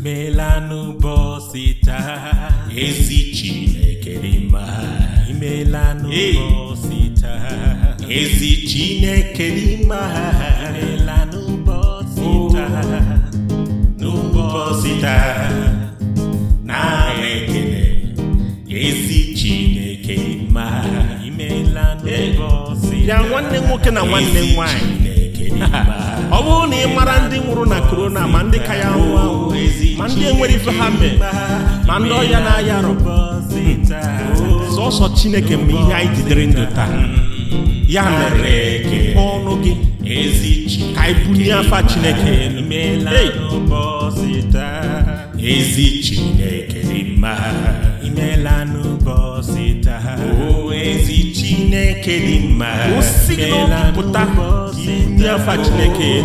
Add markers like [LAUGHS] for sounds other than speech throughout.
imeelanụ bọsị taa ezi Chineke dị mma imeelanụ bọsị taa ezi Chineke dị mma imeelanụ bọsị taa n'ụbọchị taa na ekele ezi Chineke dị mma imeelanụ bọsị taa ya nwanne nwoke na nwanne nwanyị ọ bụrụ na ị mara ndị nwụrụ na korona ma ndị ka ya nwụọ ma ndị enwere ife ha mee ma ndị ọya na-aya arọ sọsọ chineke ma ihe anyị jidere ndụ taa ya mere kpụọ ọnụ gị ka anyị bunye afa chineke ezi chineke ma chineke dị mma osi gị ndị chineke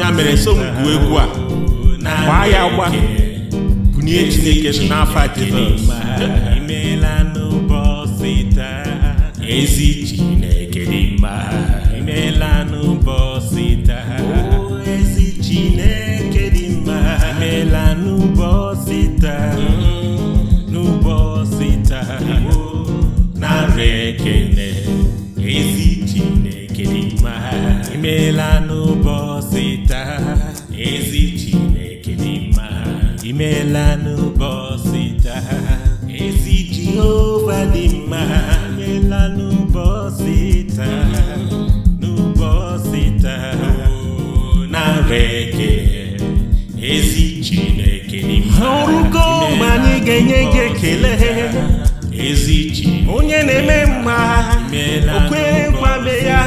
ya mere so egwu a gbaa ya gba bunye chineke n'afa jizọs ezi chineke dị mma imela n'ụbọchị taa ezi Jehova dị mma imela n'ụbọchị taa n'ụbọchị taa nara ezi Chineke mma ọrụgo mgbe anyị ga-enye gị ekele onye na-eme mma okwe kwame ya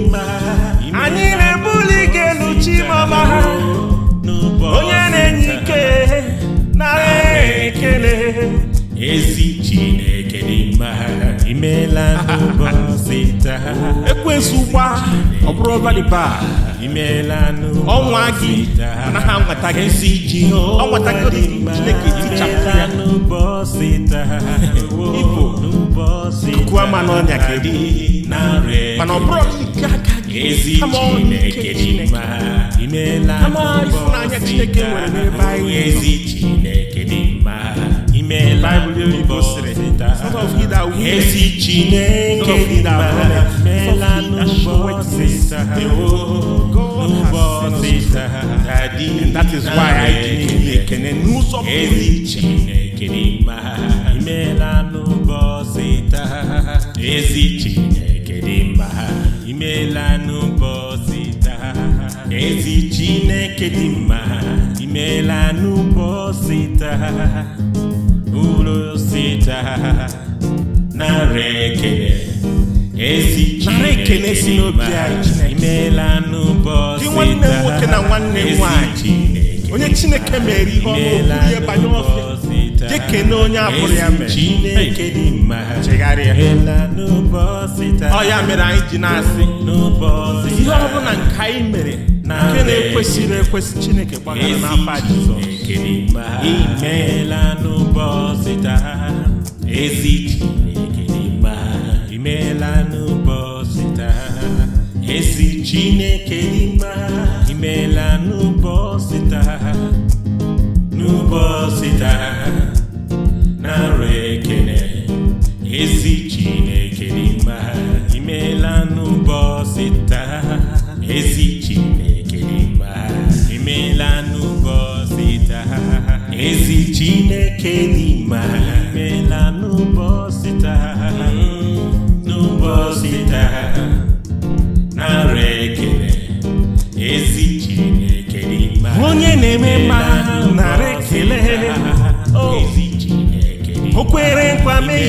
mma ekwesịkwa ọ bụrụ ọbaliba ọnwa gị ha nwata gị si ji nwata gị chineke tichapụ ibo n'ọnya kedu mana ọ bụrụ nke aka gị ama ọnụ chineke ama ifunanya chineke nwere n'ebe dị and that is why I didn't ekene n'ụzọ ezi Chineke mkpụrụ sita na ekele esi Chineke si n'obi anyị imeela n'ụbọchị nwanne nwoke na nwanne nwanyị onye Chineke mere ihe ọma ihe banye ọfịa na onye abụrụ ya mere chegharịa ọ ya mere anyị ji na-asị ihe ọ bụla nke anyị mere nke na-ekwesịrị ekwesị Chineke gbagara n'afọ Jizọs Chineke imela n'ụbọchị taa ezi Chineke imela n'ụbọchị taa ezi Chineke imela n'ụbọchị taa n'ụbọchị taa na re. n'ime n'ụbọchị taa n'ụbọchị onye na-eme mma narị ekele oh. o kwere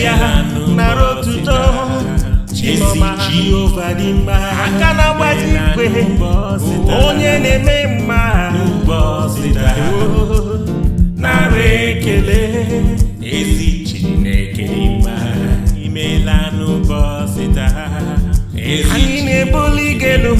ya otuto aka na-agbaji onye na-eme বলি গেলুম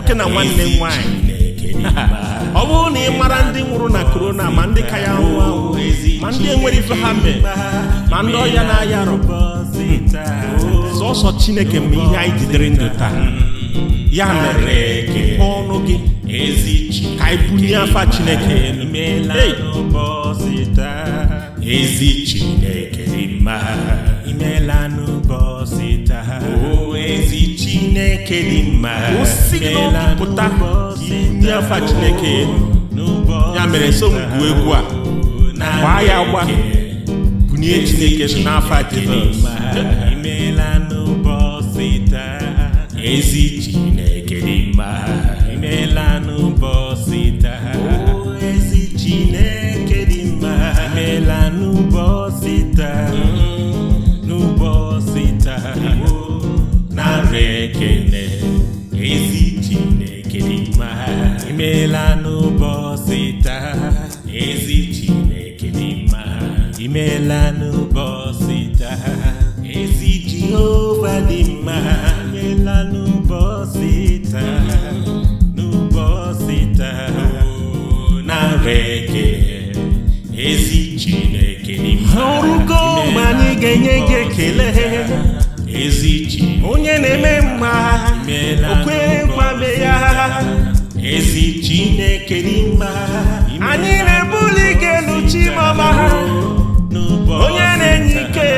nwoke na nwanne m nwaanyị ọ bụrụ na ị mara ndị nwụrụ na korona ma ndị ka ya nwụọ ma ndị enwere ife ha mee ma ndị ọya na-aya arụ sọsọ chineke mgbe ihe anyị jidere ndụ taa ya mere mepee ọnụ gị ka anyị bunye afa chineke ezi chineke imeela chineke dị mma chineke ya mere so m egwu a ya gba bunye chineke n'afa chineke imeela n'ụbọchị taa ezi Chineke dị mma imela n'ụbọchị taa ezi Jehova dị mma imela n'ụbọchị taa n'ụbọchị taa narị ekele ezi Chineke dị mma ọrụgo ma anyị ga-enye gị ekele onye na-eme mma o kwerekwabe ya ezi chineke n'ime ha anyị na-ebuli ike elu chimọma ha onye na-enye ike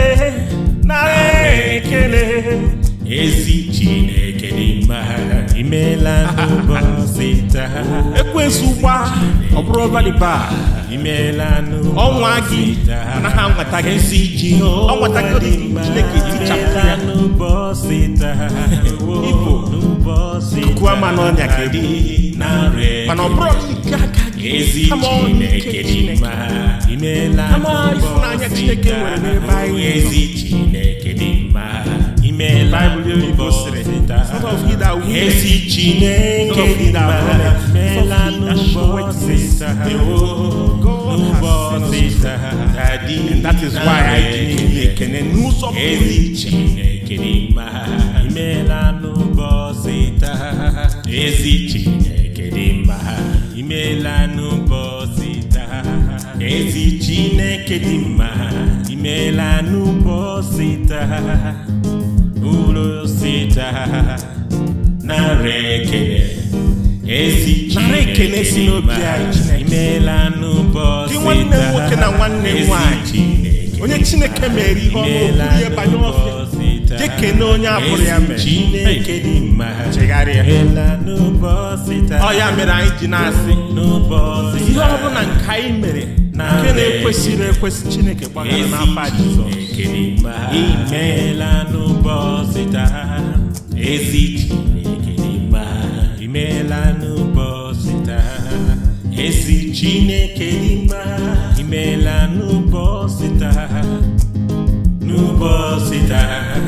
na ekele ezi chineke n'ime ha imeela n'ụbọchị taa ekwesụ ụgba ọ bụrụ ọbalịba ọnwa gị anaghị anwata gị nsị iji ọnwata gị chineke itichapụ ya igbo kuku ama n'ọnya kedị mana ọ bụrụ nke aka gị kama ọnya chineke kama ifunanya chineke nwere n'ebe anyị ezi chineke Bible yóò síta. Sort of he that will. síta. that is why I did make an síta. síta. síta. mkpụrụ osisi na esi Chineke si n'obi anyị imeela nwanne m nwoke na nwanne onye Chineke mere ihe ọma okwuru ihe banye ofe jekene onye abụrụ ya mere dị chegharịa ọ ya mere anyị ji na-asị ihe nke anyị nke na-ekwesịrị ekwesị chineke gbagara n'afa jizọs imeela n'ụbọchị taa ezi chineke imeela taa ezi chineke imeela n'ụbọchị taa n'ụbọchị taa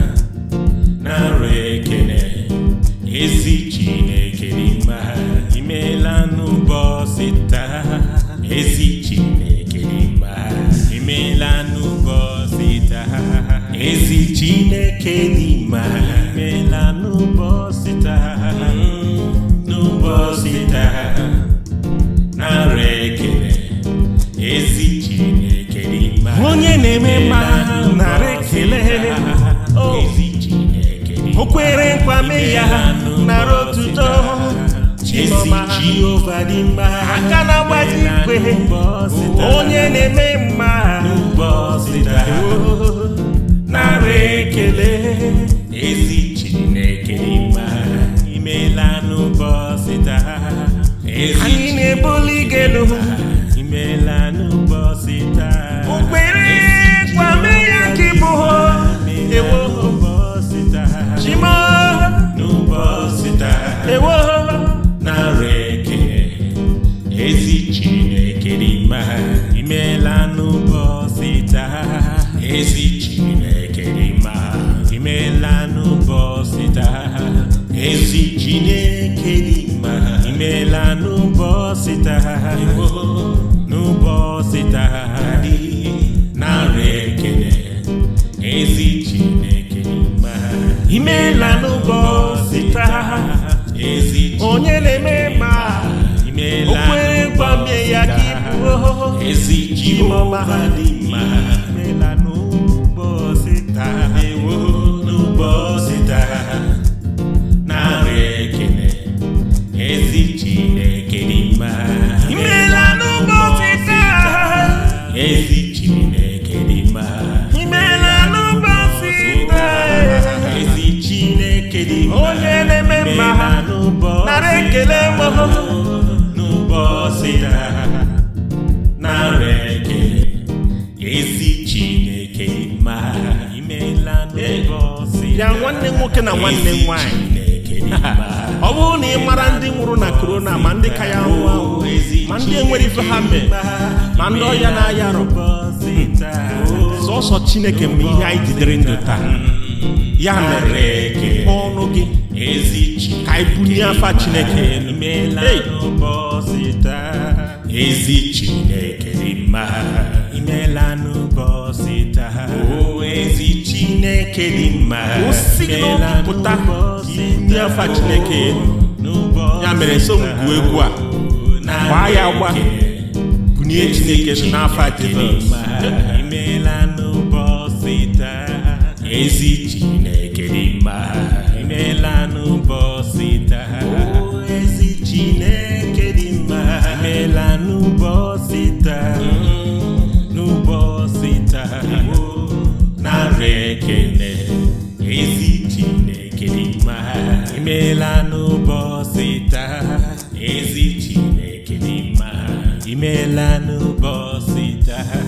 Kenima imela n'ụbọchị taa hmm, n'ụbọchị taa nara ekele ezi Chineke dị mma onye na-eme mma nara ekele oh. ezi Chineke dị mma o kwere nkwa mee ya nara otuto Chiọma Jehova dị mma aka na-agbaji ikpe onye na-eme mma n'ụbọchị taa agba ekele ezi chineke mma imela n'ụbọchị taa anyị na-ebuli imela n'ụbọchị taa okpere Exige uma lágrima nwoke na nwanne m nwaanyị ọ bụrụ na ị mara ndị nwụrụ na korona ma ndị ka ya nwụọ ahụ ma ndị enwere ife ha mee ma ndị ọya na-aya arụ hmm, sọsọ chineke ma ihe anyị jidere ndụ taa ya mere ka ọnụ gị ka anyị bulie afa chineke ezi chineke imeela n'ụbọchị taa chineke dị mma pụta ndị afa chineke ya mere so mgwu egwu a gbaa ya gba bunye chineke n'afa ezi chineke dị mma imeela imeela n'ụbọchị taa ezi chineke dị mma imeela n'ụbọchị taa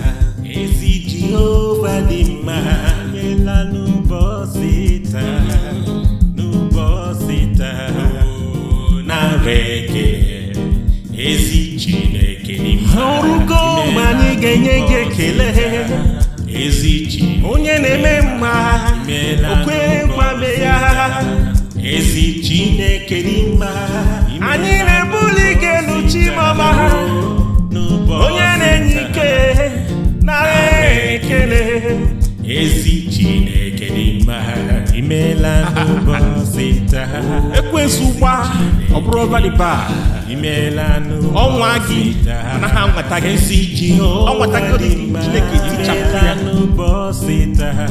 ezi jehova dị mma imeela n'ụbọchị taa n'ụbọchị taa oh, narị ezi chineke dị mma ọrụgo enye gị ekele onye na-eme mma o ya ezi Chineke n'ime anyị na-ebuli gị elu chimama onye na-enye ike na ekele ezi imela n'ụbọchị taa ekwensu gba ọ bụrụ valiba imela n'ụbọchị gị na ha nweta gị nsị ọ nweta gị chineke tichapụ ya n'ụbọchị taa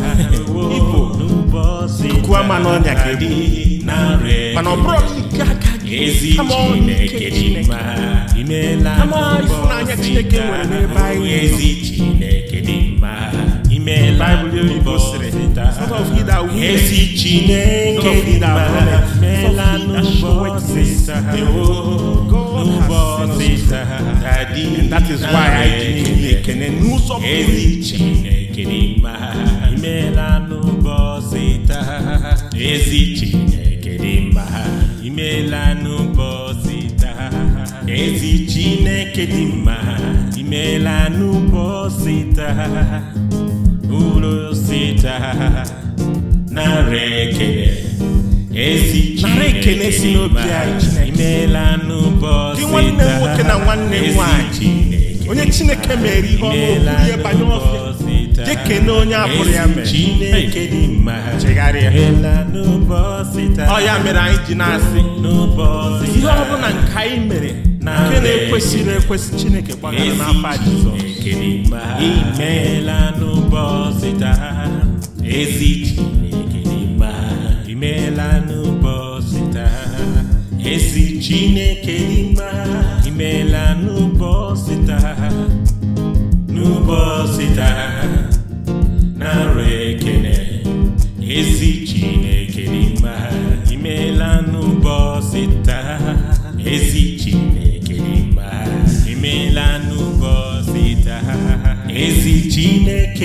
ibo kukua ma n'ọnya kedu mana ọ bụrụ nke aka ezi chineke dị mma imela n'ụbọchị taa ezi chineke dị mma imela that is why I dị ekene n'ụzọ ezi uru sita nara ekele esi Chineke si n'obi anyị imeela n'ụbọchị taa nwanne nwoke na nwanne nwanyị onye Chineke mere ihe ọma ihe banye ọfịa na onye abụrụ ya mere Chineke dị mma chegharịa ọ ya mere anyị ji na-asị ihe ọ bụla nke anyị mere nke na ekwesị chineke gbagara n'afa jizọs imeela n'ụbọchị taa ezi chineke dị imeela n'ụbọchị taa ezi chineke imeela n'ụbọchị taa n'ụbọchị taa na nrọ ekene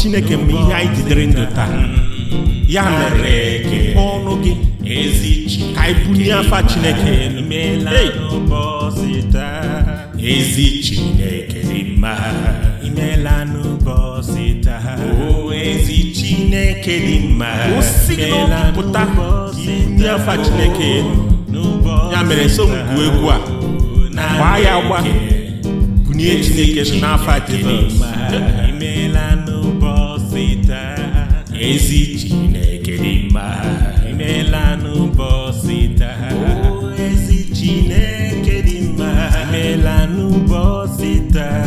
chineke mgbe ihe anyị jidere ndụ taa ya mere kepee ọnụ gị ka anyị bunye afa chineke ezi chineke dị mma imeela n'ụbọchị taa o ezi chineke dị mma osi n'ọpụta inye afa chineke ya mere so ngwu egwu a gbaa ya gba bunye chineke n'afa jizọs Ezitine chineke né, dị mma imela n'ụbọchị taa ezi chineke dị mma imela no taa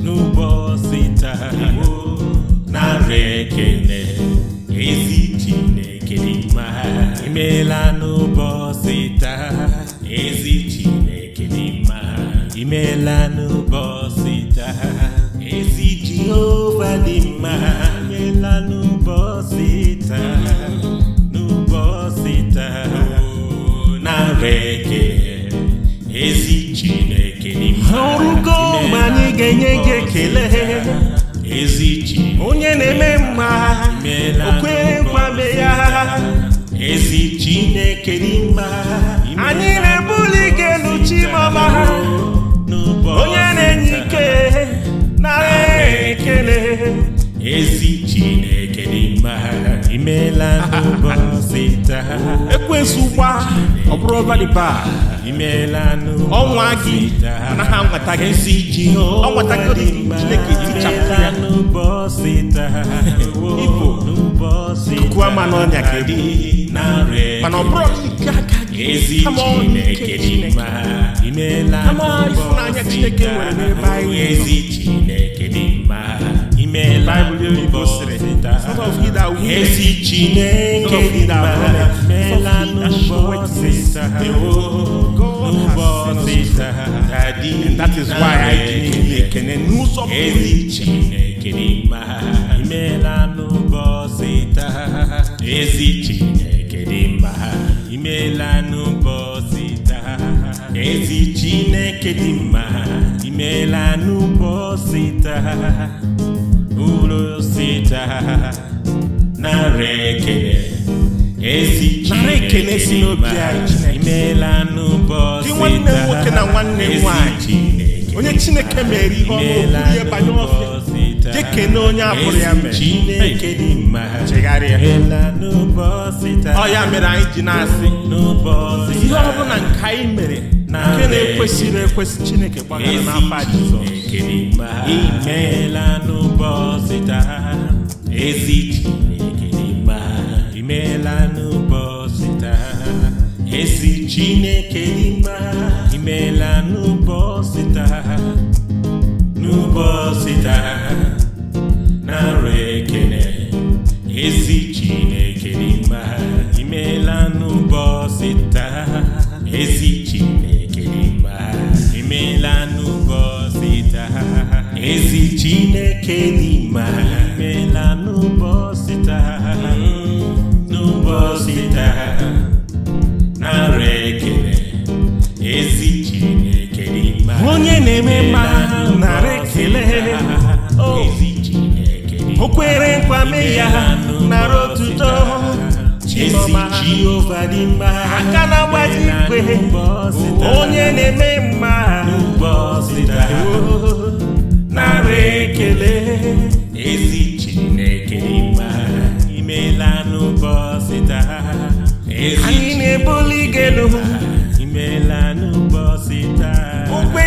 n'ụbọchị taa narị ekele ezi chineke dị mma imela n'ụbọchị taa ezi chineke imela Chineke ezi Chineke n'ime ọrụgo mgbe anyị ga-enye gị ekele ezi onye na-eme mma okwe gwabe ya ezi Chineke n'ime anyị na-ebuli gị elu chimama onye na-enye ike nara ekele ezi Chineke n'ime imela n'ụbọchị taa ekwensu gba ọ bụrụ ọbalịba imela ọnwa gị ha anwata gị nsị ji ọnwata gị chineke tichapụ ya n'ụbọchị taa ibo kuwa ma n'ọnya kedu mana ọ bụrụ nke aka nke chineke n'ụbọchị ezi chineke dị mma dị and that is why I didn't ekene n'ụzọ ezi Chineke mkpụrụ sita nara ekele esi Chineke imela nwoke na nwanne nwanyị, onye Chineke mere ihe ọma ihe banye ọfịa na onye abụrụ ya mere Chineke dị chegharịa ọ ya mere anyị ji na-asị ihe ọbụla bụla nke anyị mere nke na-ekwesịrị ekwesị Chineke gbaghara n'afọ Jizọs Chineke imela n'ụbọchị taa ezi Chineke imela n'ụbọchị taa ezi Chineke imela n'ụbọchị taa n'ụbọchị taa na re. chineke n'ime na n'ụbọchị taa mm, n'ụbọchị taa narị ekele ezi chineke n'ime onye na-eme mma narị ekele oh. ezi chineke o kwere nkwa mee ya nara otuto chiọma jehova dị mma aka na-agbaji ikwe onye na-eme mma n'ụbọchị taa oh. na-ekele ezi chineke ịma imela n'ụbọchị taa anyị na-ebuli imela n'ụbọchị taa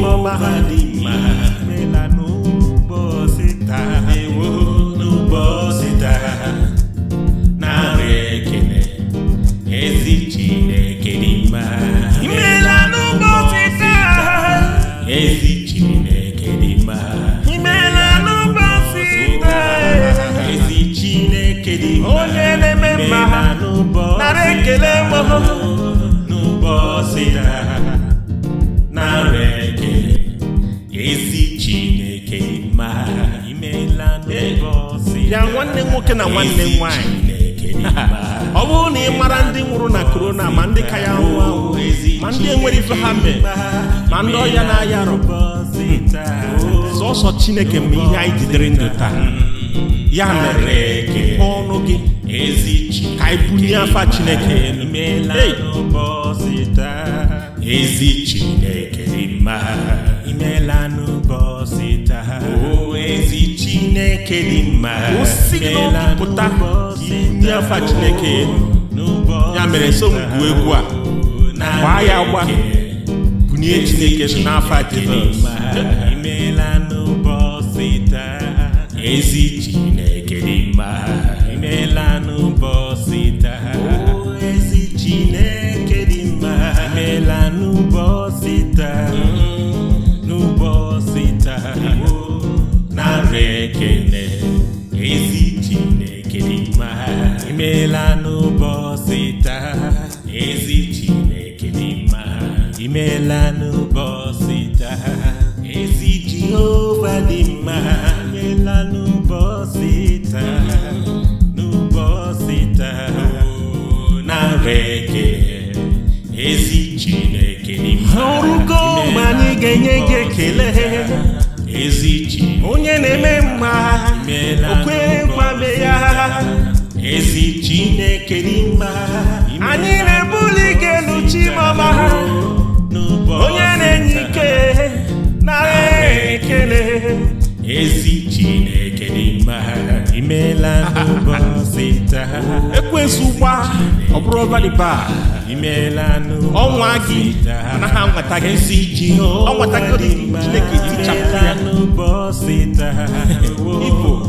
mama hadi na nwanne m nwaanyị ọ bụrụ na ị mara ndị nwụrụ na korona ma ndị ka ya nwụọ ma ndị enwere ife ha mee ma ndị ya na-aya arụ hmm, sọsọ chineke mgbe ihe anyị jidere ndụ taa ya mere ike ọnụ gị ka anyị bunye afa chineke chineke dị mma si pụta chineke ya mere so m egwu a gbaa ya gba bunye chineke nọ n'afa jizọs ezi chineke dị imeela n'ụbọchị taa ezi Chineke dị mma imela n'ụbọchị taa ezi Jehova dị mma imeela n'ụbọchị taa n'ụbọchị taa narị ekele ezi Chineke dị mma ọrụgo ma anyị ga-enye gị ekele Ezi Chineke onye na-eme mma o kwerekwabe ya ezi chineke n'ime ha anyị na-ebuli ike elu chimọma ha onye na-enye ike na ekele ezi chineke n'ime ha imeela n'ụbọchị taa ekwensu gba ọ bụrụ valiba imeela ọnwa gị anaghị anwata gị ezi ji ọ nwata gị chineke ya n'ụbọchị taa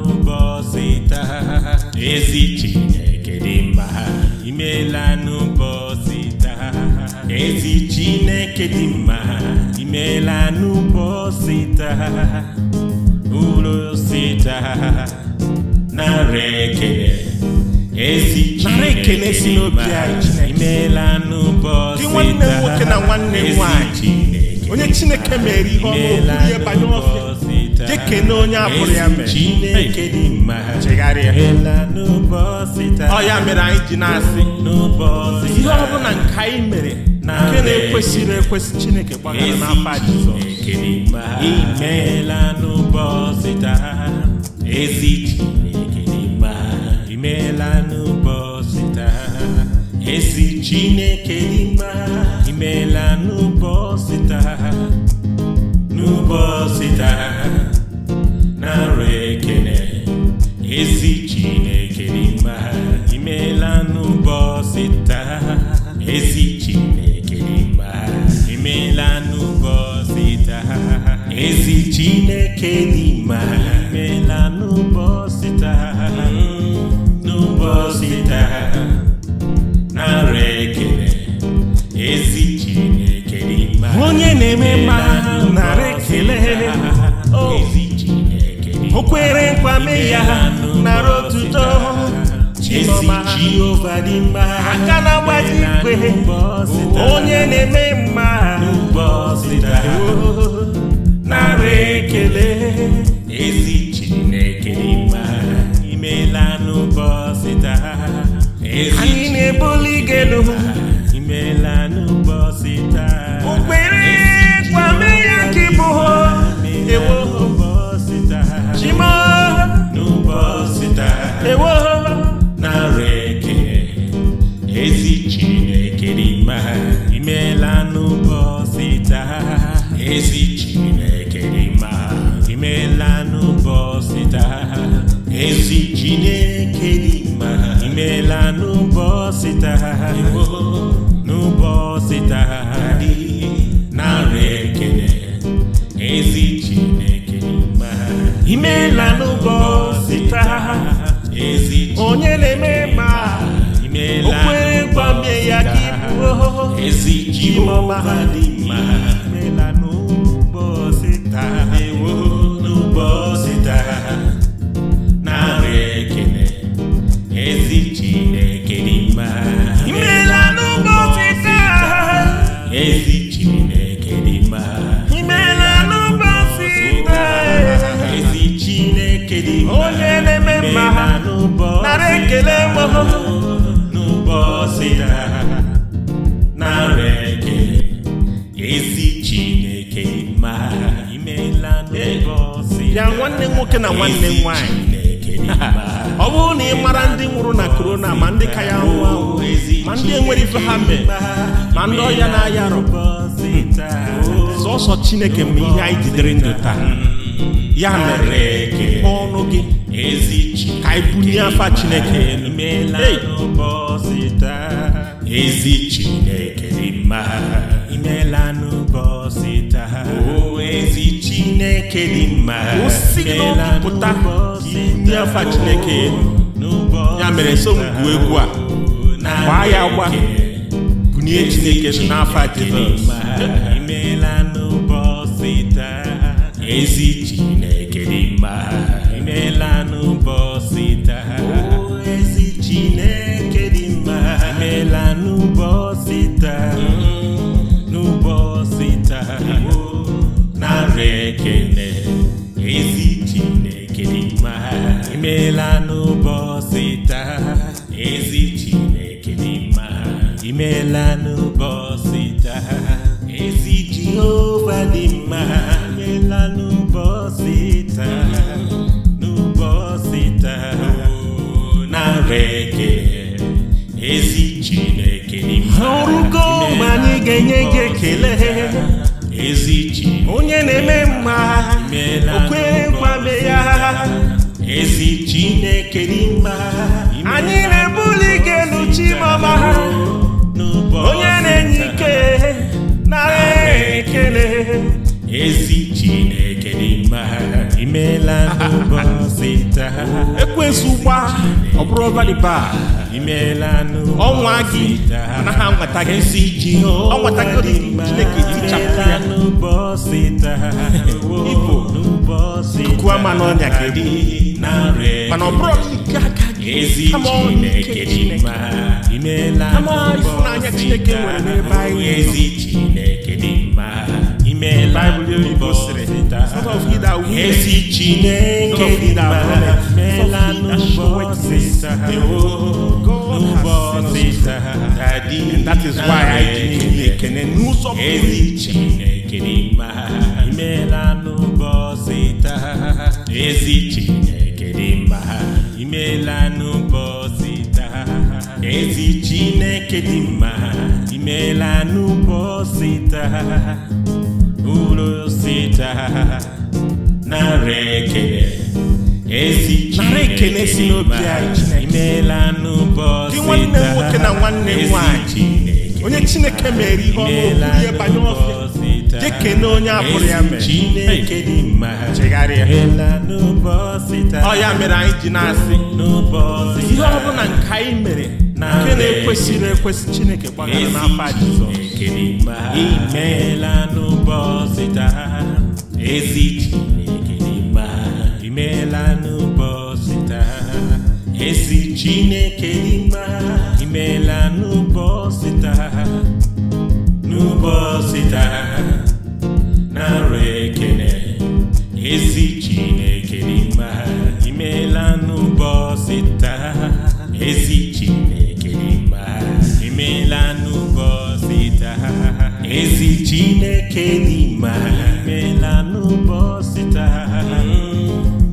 cheta ezi chineke dị mma imeela n'ụbọchị taa ezi chineke dị mma imela n'ụbọchị taa ụlọ taa narị ekele ezi chineke dị mma n'ụbọchị taa ezi chineke onye chineke mere ihe ọma ihe banye ọfịa jekene onye abụrụ ya mere Chineke dị mma chegharịa ọya mere anyị ji na-asị ihe ọ bụla nke anyị mere Na nke na-ekwesịrị ekwesị Chineke gbagara na n'afa Jizọs imeela n'ụbọchị taa ezi Chineke dị mma imeela n'ụbọchị taa ezi Chineke dị mma imeela n'ụbọchị taa n'ụbọchị taa ara ekene ezi chineke n'ime ha imeela n'ụbọchị taa ezi chineke n'ime ha imeela n'ụbọchị taa ezi chineke n'ime ha imeela n'ụbọchị taa mm, n'ụbọchị taa nara ekene ezi chineke n'ime ha onye na-eme mma kwere nkwa ya nara otuto chiọma Jehova dị mma aka na-agbaji igwe onye na-eme mma nara ekele ezi Chineke mma imela n'ụbọchị anyị na-ebuli gị elu my honey. ife ma ndị ọhịa na aya arụ hmm. sọsọ chineke mgbe ihe anyị jidere ndụ taa ya mere kepee ọnụ gị ka anyị bulie afa chineke ezi chineke mma imeela n'ụbọchị taa o ezi chineke dị mma osi oh, n'obi ya mere m egwu a Vai agba bunye chineke n'afọ jizọs imeela n'ụbọchị taa ezi chineke dị mma imeela n'ụbọchị taa ezi chineke dị mma imeela n'ụbọchị taa n'ụbọchị taa narị ekele ezi na-enye gị ekele ezi chi onye na-eme mma okwe gwabe ya ezi Chineke n'ime anyị na-ebuli gị elu chimama onye na-enye ike na ekele ezi Imela no bọsita. Ekwensu gba ọbụrụ ọbaliba. Imela no bọsita. Ọnwa na ha nwata gị nsi o Ọnwata gị Chineke tichapụ ya. Imela no bọsita. Igbo kuku ama n'ọnya mano Mana ọbụrụ nke na gị. Ama ọnụ nke Chineke. Imela no bọsita. Ama ịfụnanya Chineke nwere n'ebe Ezi Chineke dị mma. Imela no bọsita. And that is why I didn't know something. Ezi Chineke dị uru sita na ekele esi Chineke si n'obi anyị imeela nwoke na nwanne nwaanyị, onye Chineke mere ihe ọma ihe banye ọfịa jekene onye abụrụ ya mere Chineke dị mma chegharịa ọ ya mere anyị ji na-asị ihe ọ bụla nke anyị mere nke na-ekwesịrị ekwesị chineke gbagara n'afa jizọs imeela n'ụbọchị taa ezi chineke dị mma imeela n'ụbọchị taa ezi chineke dị mma imeela n'ụbọchị taa n'ụbọchị taa narị ekene ezi chineke dị Kenima mela n'ụbọchị taa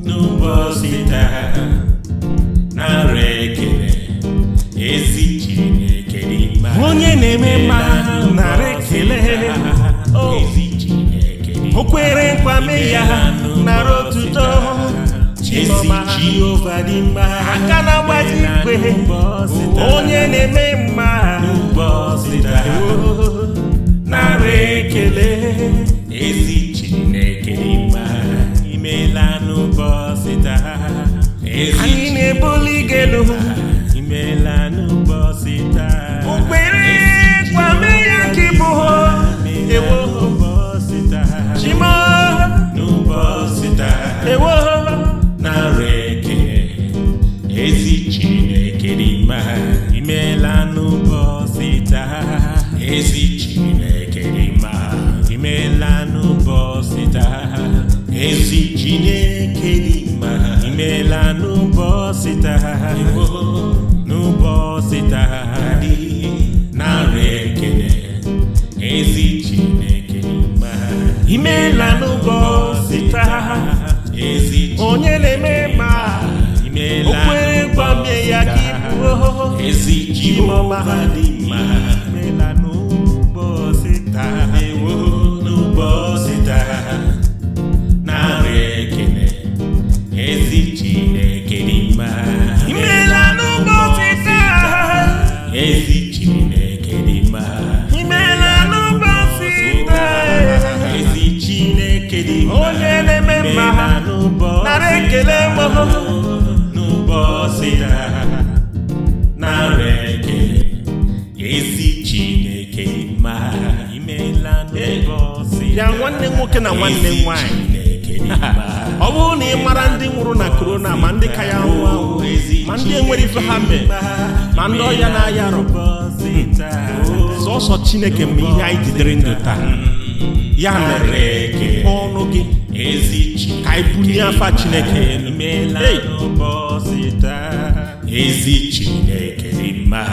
n'ụbọchị taa nara ekele ezi ekele mma onye na-eme mma ha ekele oh. ezi ekele o nkwa ya narị otuto Chiọma Jehova dị mma aka na-agbaji ikpe onye na-eme mma n'ụbọchị ekele ezi chineke mma imeela n'ụbọchị taa anyị na-ebuli gị elu imeela mahali ya na aya rụ hmm. sọsọ chineke ma ihe anyị jidere ndụ taa ya mere kekwa ọnụ gị ka anyị bunye afa chineke ezi chineke dị mma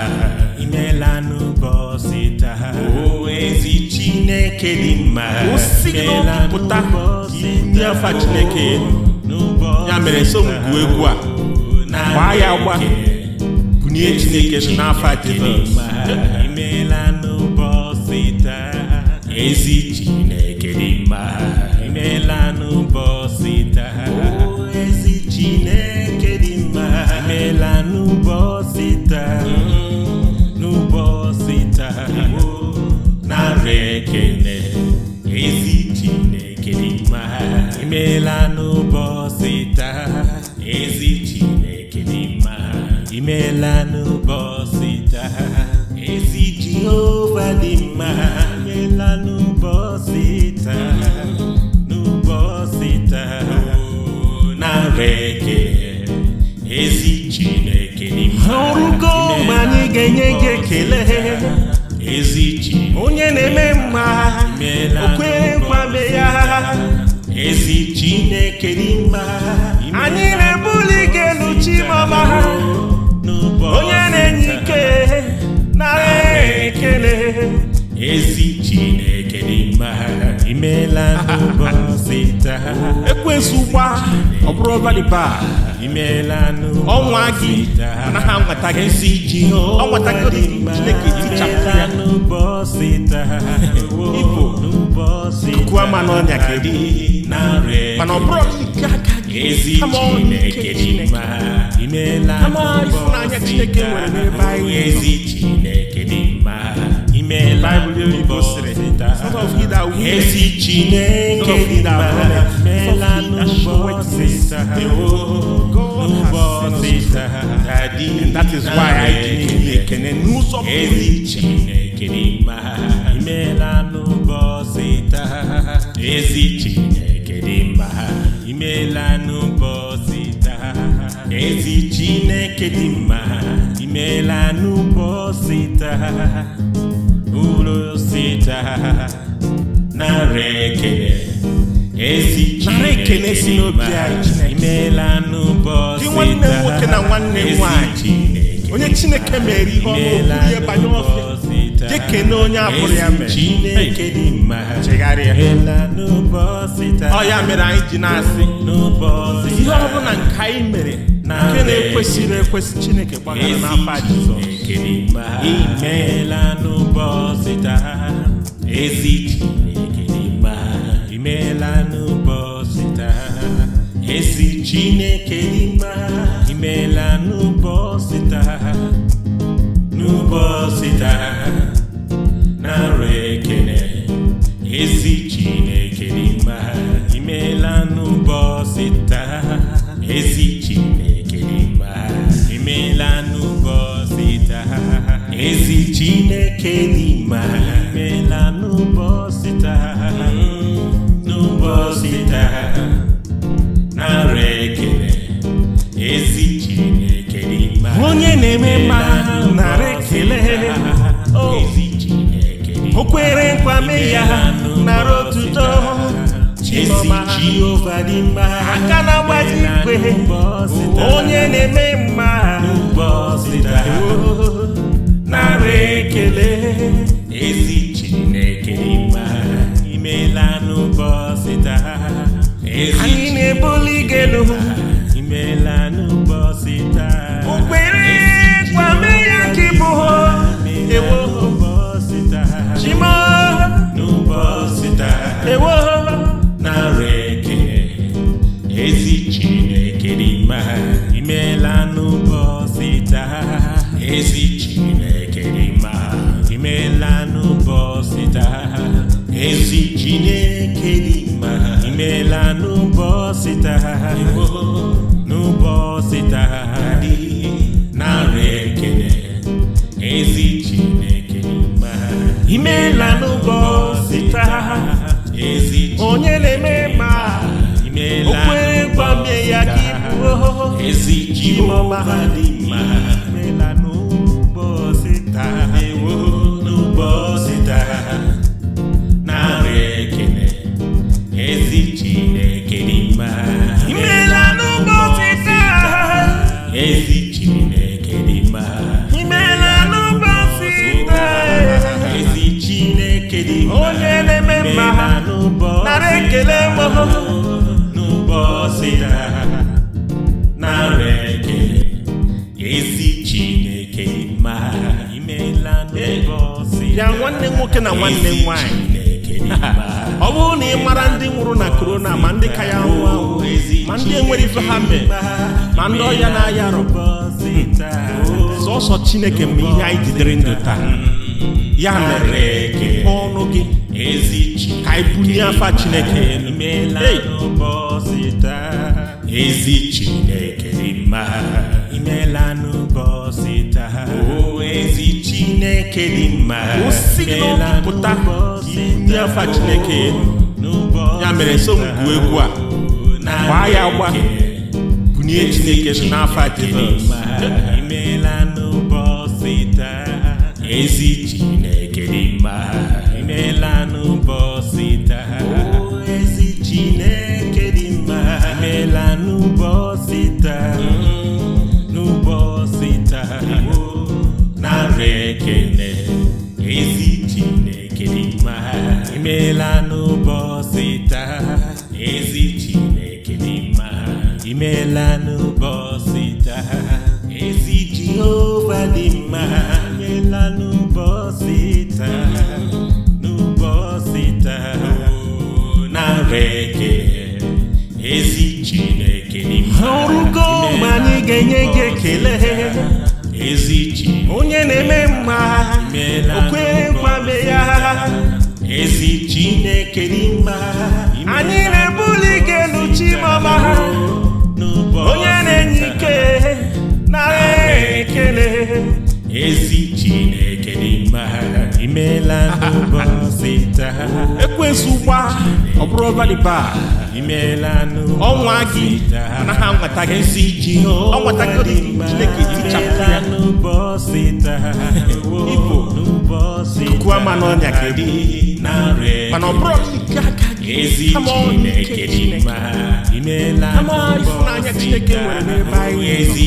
o ezi chineke dị mma osi n'ọpụta inye afa chineke ya mere so ngwu egwu a gbaa ya gba onye chineke nọ n'afọ anyị na-ebuli ike elu chimọma ha onye na-enye ike nara ekele ezi imela n'ụbọchị taa ekwensu gba ọ bụrụ ọbalịba imela ọnwa gị ha anwata gị nsị ji ọnwata gị chineke tichapụ ya n'ụbọchị taa ibo kuwa ma n'ọnya kedu mana ọ bụrụ nke aka nke chineke n'ụbọchị ezi chineke dị mma dị and that is why I didn't ekene n'ụzọ ezi Chineke mkpụrụ sita na ekele esi Chineke si n'obi anyị imeela n'ụbọchị nwanne nwoke na nwanne nwanyị onye Chineke mere ihe ọma ihe banye ọfịa na onye abụrụ ya mere chegharịa ọ ya mere anyị ji na-asị ihe ọ bụla nke anyị mere nke na-ekwesịrị ekwesị Chineke gbagara n'afọ Jizọs Chineke imela n'ụbọchị taa ezi Chineke imela n'ụbọchị taa ezi Chineke imela n'ụbọchị taa n'ụbọchị taa na re. n'ime n'ụbọchị taa n'ụbọchị taa onye na-eme mma narị ekele oh. o ya nara otuto Chiọma Jehova dị mma aka na-agbaji ikwe onye na-eme mma n'ụbọchị আমি এনে বলি গেলুম mama hadi chineke mgbe ihe anyị jidere ndụ taa ya mere ka ọnụ gị ka anyị bunye afa chineke ezi chineke dị imela n'ụbọchị taa ezi chineke dị mma afa chineke ya mere so m egwu a gbaa ya gba bunye chineke n'afa jizọs visite okwekwame ya ezi chineke n'ime anyị na-ebuli ike ha onye na-enye ike nara ekele ezi chineke n'ime ha n'ụbọchị ekwensu gba ọ bụrụ valiba ọnwa gị anaghị anwata gị nsị iji ọnwata gị chineke tichapụ ya ama n'ọnya kedị, mana ọ bụrụ nke aka gị kama ọnya ike chineke chineke nwere n'ebe anyị ezi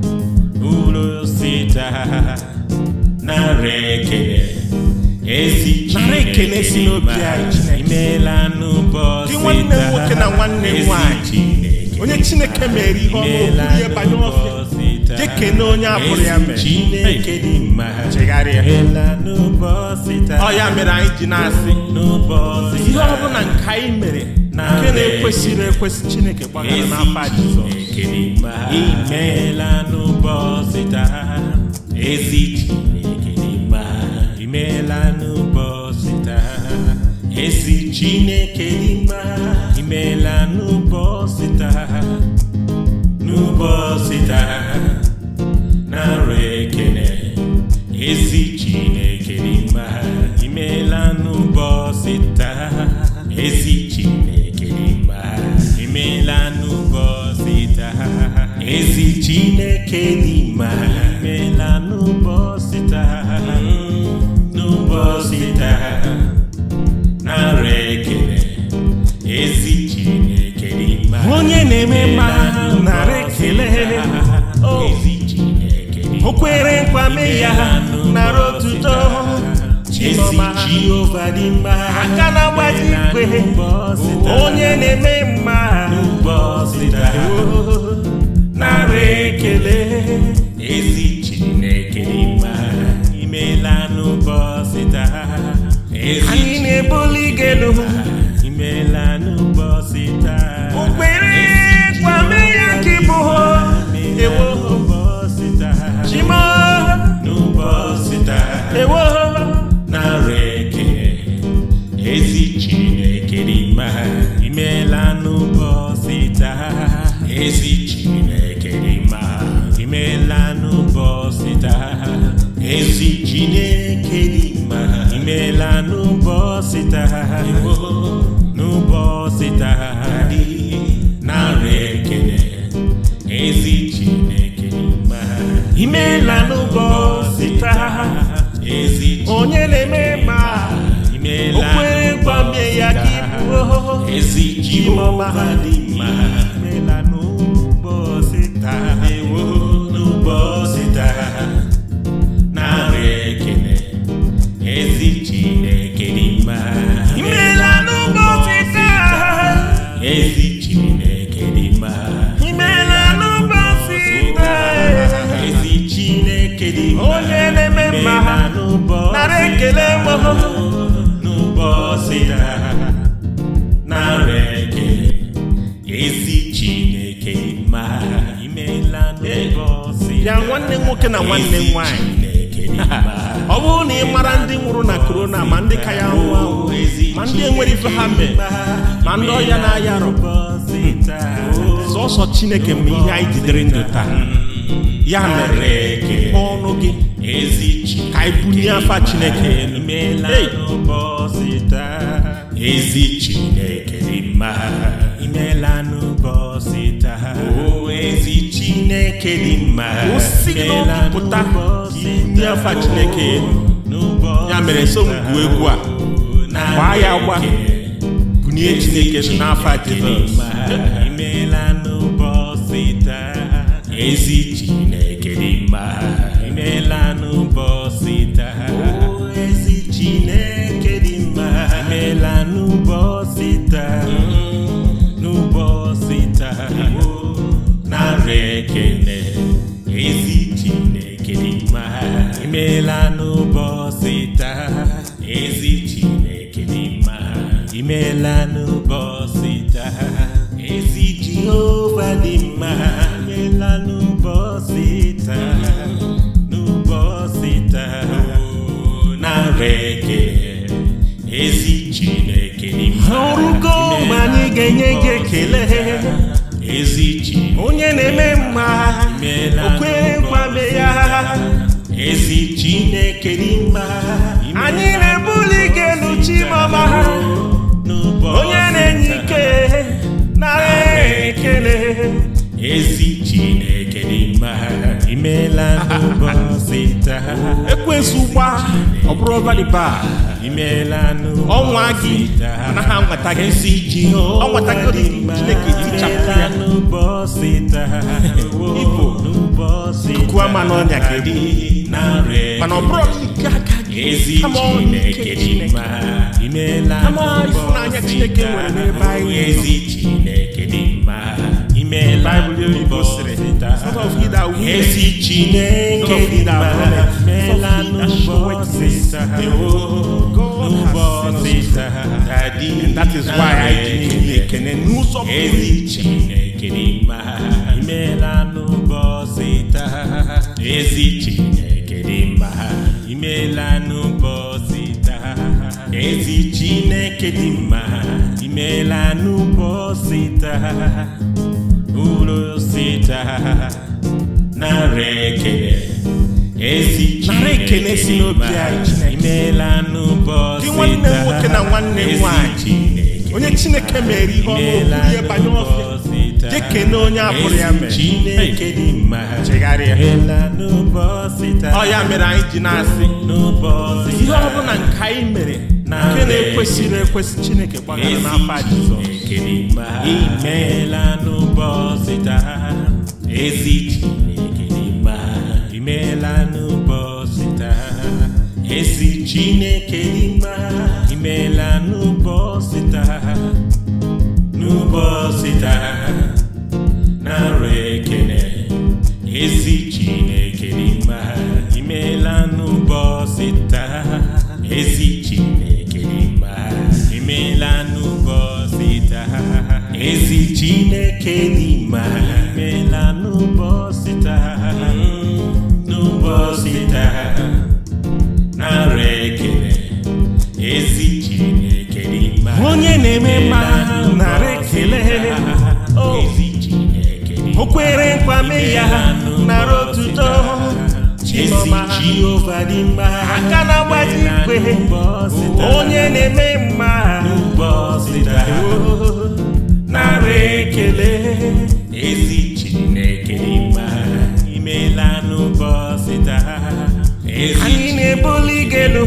mkpụrụ osisi na ekele si n'obi anyị nwanne nwoke na nwanne nwanyị onye Chineke mere ihe ọma okwuru ihe banye ofe jekene onye abụrụ ya mere ọ ya mere anyị ji na-asị ihe nke anyị nke na-ekwesịrị ekwesị chineke gbagara n'afa jizọs imeela n'ụbọchị taa ezi chineke imeela n'ụbọchị taa ezi chineke imeela n'ụbọchị taa Kenima imela n'ụbọchị taa hmm, n'ụbọchị taa ekele ezi Chineke onye na-eme mma nara ekele oh. ezi Chineke o kwere nkwa ya nara otuto chi Jehova dị mma aka onye na-eme mma n'ụbọchị taa oh. ekele I na na-ebuli gelu imeela mahali melanu bọ́ síta ewo nu bọ́ síta narị ekele ezi Chineke dị mma melanu bọ́ síta ezi Chineke dị mma melanu bọ́ síta ezi Chineke dị mma onye na-eme mma narị ya nwanne nwoke na nwanne nwanyị ọ bụrụ na ị mara ndị nwụrụ na korona ma ndị ka ya ahụ ma ndị enwere ife ha ma ndị ọhịa na-aya arụ hmm, sọsọ chineke ma ihe anyị jidere ndụ taa ya mere ọnụ gị ka anyị afa chineke ezi chineke dị mma pụta ndị afa chineke ya mere so mgwu egwu a gbaa ya gba bunye chineke n'afa ezi chineke dị mma imeela imeela n'ụbọchị taa ezi chineke dị mma imela n'ụbọchị taa ezi jehova dị mma imela n'ụbọchị taa n'ụbọchị taa oh, narị eke ezi chineke dị mma ọrụgo mgbe anyị ga-enye gị ekele ezi chi onye na-eme ezi Chineke n'ime anyị na-ebuli gị elu chimama onye na-enye ike nara ekele ezi Chineke n'ime ha imeela n'ụbọchị taa ezugba ọ bụrụ valiba ọnwa gị anaghị anwata gị nsị iji ọ nwata gị chineke tichapụ ya ibo ma n'ọnya dị mana ọ bụrụ nke aka gị ama nke chineke ama ịfụnanya chineke nwere n'ebe anyị ezi chineke dị mma vida. Resiste nem querida Ela não pode estar Não pode estar That is why I it, que nem é querida Ela não pode estar Resiste nem querida Ela não pode estar Resiste nem querida Ela não pode estar uru sita nara ekele esi Chineke si n'obi anyị imeela nwoke na nwanne Chineke onye Chineke mere ihe ọma ihe banye ọfịa jekene onye abụrụ ya mere Chineke dị mma chegharịa ọ ya mere anyị ji na-asị ihe ọ bụla nke anyị mere nke na-ekwesịrị ekwesị chineke gbagara n'afa jizọs imeela n'ụbọchị taa ezi chineke dị mma imeela n'ụbọchị taa ezi chineke dị mma imeela n'ụbọchị taa n'ụbọchị taa narị ekene ezi chineke dị ezi chineke dị mma meela n'ụbọchị taa n'ụbọchị taa narị ekele ezi chineke dị mma onye na-eme mma narị ekele oh. ezi chineke dị kwere nkwa mee ya nara otuto chioma jehova dị mma aka na-agbaji igwe onye na-eme mma n'ụbọchị taa ekele ezi chineke mma imeela n'ụbọchị taa anyị na-ebuli gị elu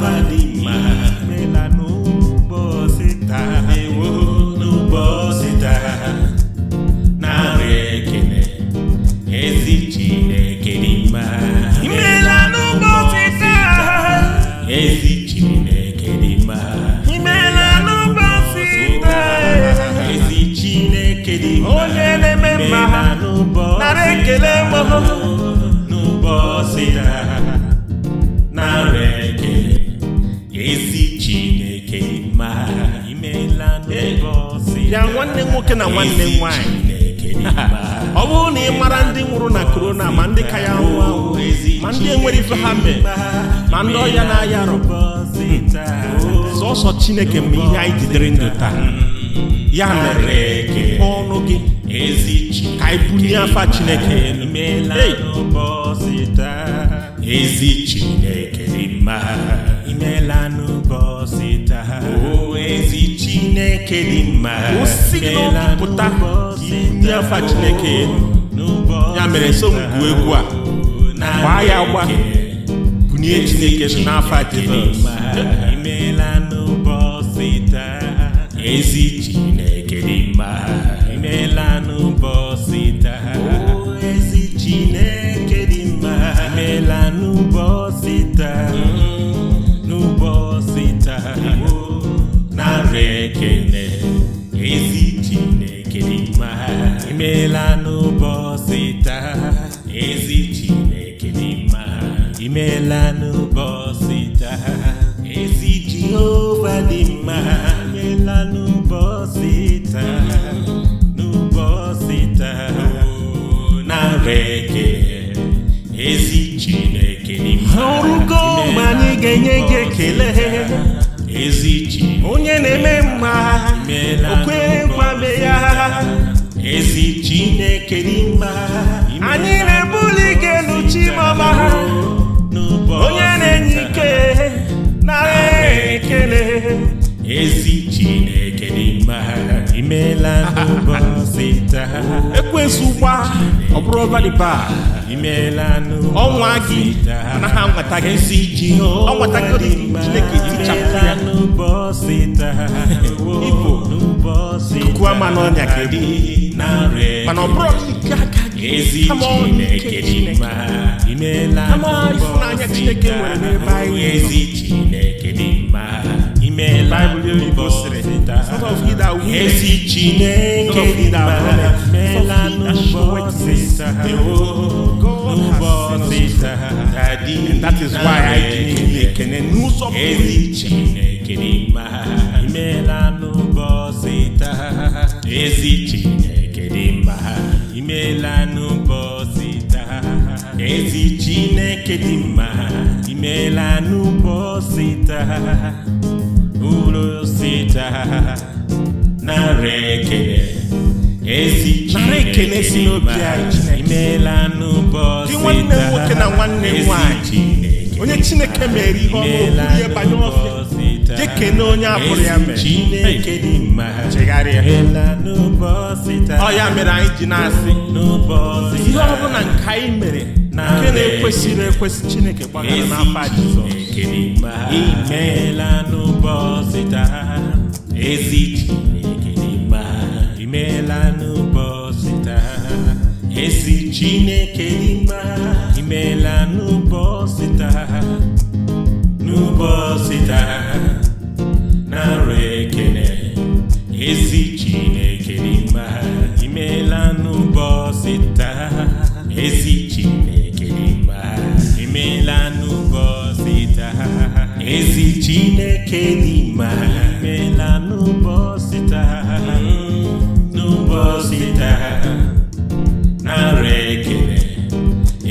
Bahani. ya nwanne nwoke na nwanne nwanyị [LAUGHS] ọ bụrụ na ị mara ndị nwụrụ na korona ma ndị ka ya nwụọ ma ndị enwere ife ha mee ma ndị ya na-aya arụ hmm. sọsọ chineke ma ihe anyị jidere ndụ taa hmm. ya mere mpe ọnụ gị ka anyị bunye afa chineke chineke dị mma afa chineke ya mere so egwu a gbaa ya gba bunye chineke n'afa jizọs chineke emeela n'ụbọchị taa ezi Jehova dị mma emeela n'ụbọchị taa n'ụbọchị taa nara eke Chineke dị mma ọrụgo mgbe anyị ga-enye gị ekele onye na-eme mma okwe kwame ya ezi Chineke dị mma anyị na-ebu na ekele ezi chineke n'ụbọchị taa ekwensu gwa ọ bụrụ ọbaliba imeela n'ọnwa gị ha gị ọ nweta gị chineke tichapụ ya n'ụbọchị taa ibo kuku ama n'ọnya gị e mana ọ bụrụ nke aka ezi chineke dị é imela mbọsị ka ezi chineke dị mma imela mbọsị ka ezi chineke dị mma imela mbọsị ka mbọsị ka dị mma ezi chineke dị mma imela mbọsị ka ezi chineke imeela n'ụbọchị taa ezi chineke dị mma imeela n'ụbọchị taa urosi taa nara ekele ezi chineke dị mma imeela n'ụbọchị taa ezi chineke onye chineke mere ihe ọma ihe banyere ọfịa na onye apụrụ ya mere chineke dị mma chegharịa ọ ya mere anyị ji na-asị ihe nke anyị mere nke na-ekwesịrị ekwesị chineke gbagara n'afọ jizọs imeela n'ụbọchị taa ezi chineke dị mma imeela chineke dị mma n'ụbọchị taa n'ụbọchị taa arụ ekene ezi chineke n'ime ha imela n'ụbọchị taa ezi chineke n'ime ha imela n'ụbọchị taa ezi chineke n'ime ha imela mm, n'ụbọchị taa n'ụbọchị taa na-arụ ekene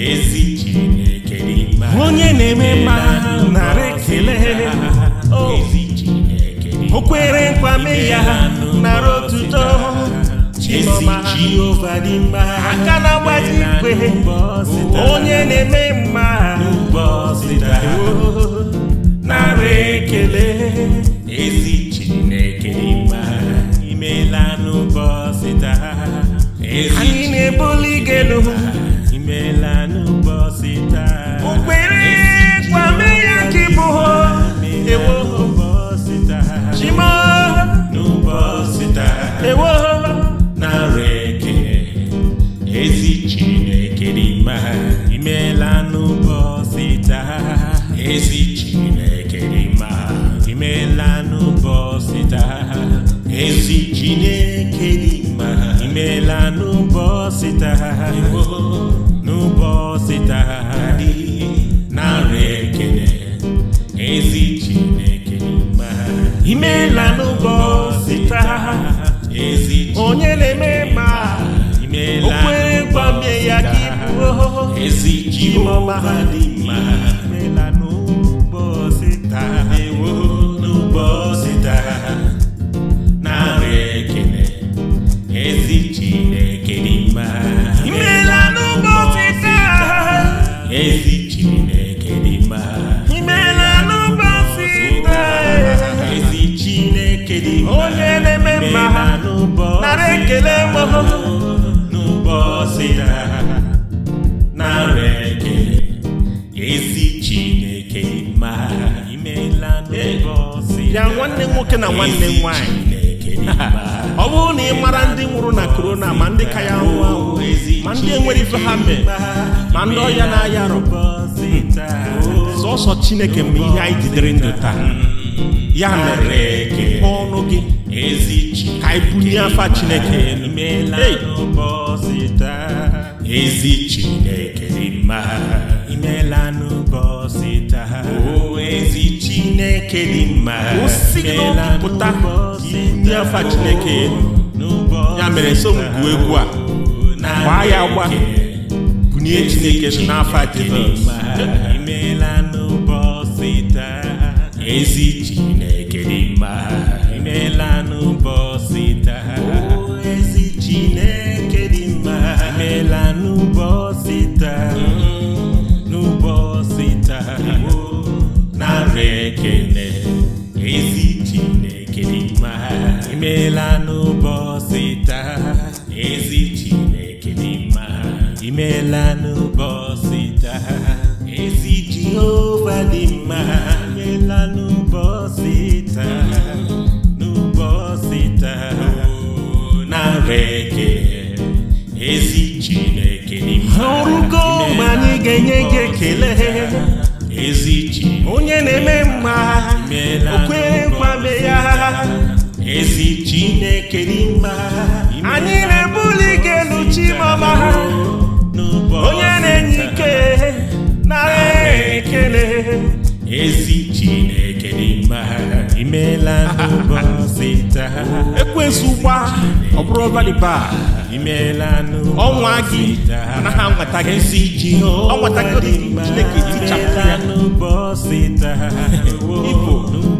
ezi chineke n'ime ha onye na-eme mma narị ekele oh. ezi o kwere nkwa ya nara otuto Chioma aka na agbaji igwe onye na-eme mma nara ekele ezi Chineke mma n'ụbọchị taa anyị na-ebuli gelu aqui por residir nwoke na nwanne m nwaanyị ọ bụrụ na ị mara ndị nwụrụ na korona ma ndị ka ya nwụọ ma ndị enwere ife ha mee ma ndị ọya na-aya arụ sọsọ chineke mgbe ihe anyị jidere ndụ taa ya mere mepee ọnụ gị ka anyị bunye afa chineke ezi chineke imeela n'ụbọchị taa oh, chineke dị mma pụta ndị afa chineke ya mere egwu a gbaa ya gba bunye chineke n'afa jizọs imeela n'ụbọchị taa ezi Chineke dị mma imela n'ụbọchị taa ezi Jehova dị mma imela n'ụbọchị taa n'ụbọchị taa na ekele ezi Chineke dị mma ọrụgo ma anyị ga-enye gị ekele Ezi onye na-eme mma o ya ezi chineke n'ime ha anyị na-ebuli ike elu chimọma ha onye na-enye ike na ekele ezi chineke n'ime ha imeela n'ụbọchị taa ekwensu gba ọ bụrụ valiba imeela ọnwa gị anaghị anwata gị ezi ji ọ nwata gị chineke ya n'ụbọchị taa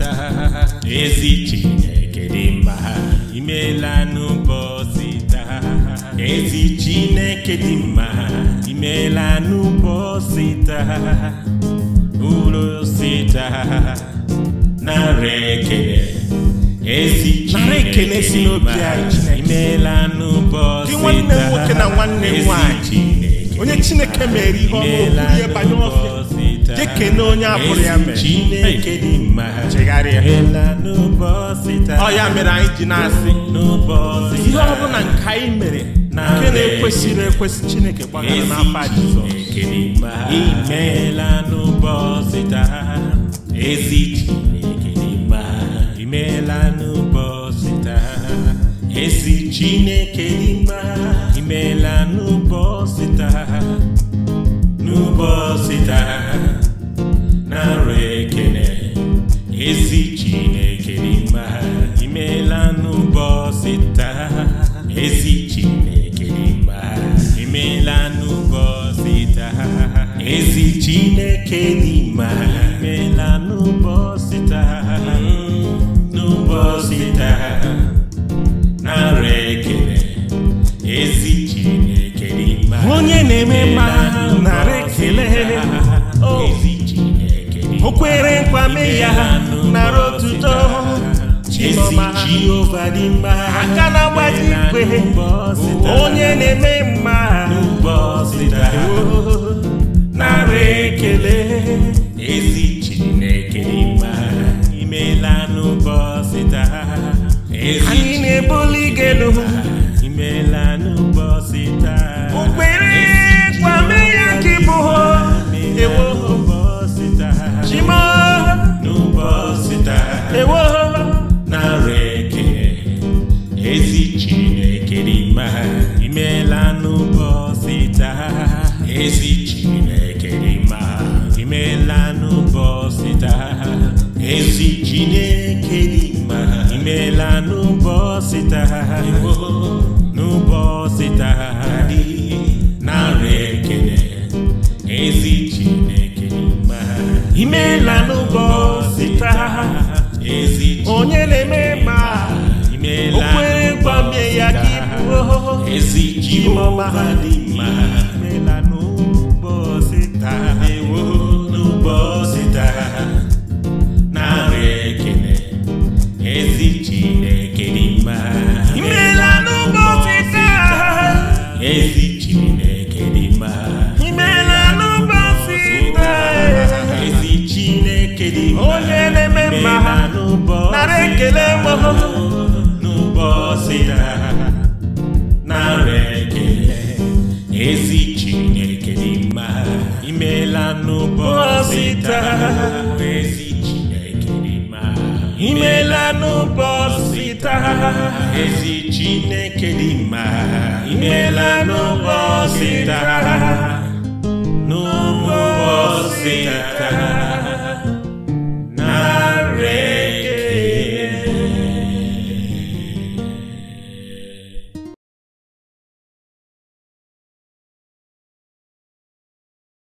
cheta ezi chineke dị mma imeela n'ụbọchị taa ezi chineke dị mma imela n'ụbọchị taa ulosi taa narị ekele ezi chineke dị mma n'ụbọchị taa nwanne m na nwanne n'ụbọchị taa onye chineke mere ihe ọma ihe ọfịa jekene onye abụrụ ya mere Chineke dị mma chegharịa ọya mere anyị ji na-asị ihe ọ bụla nke anyị mere Na nke na-ekwesịrị ekwesị Chineke gbagara na n'afa Jizọs imeela n'ụbọchị taa ezi Chineke dị mma imeela n'ụbọchị taa ezi Chineke dị mma imeela n'ụbọchị taa n'ụbọchị taa ara ekene ezi chineke n'ime ha imeela n'ụbọchị taa ezi chineke n'ime ha imeela n'ụbọchị taa ezi chineke n'ime ha imeela n'ụbọchị taa nwere nkwame ya nara otuto chimọma aka na-agbaji igwe onye na-eme mma narị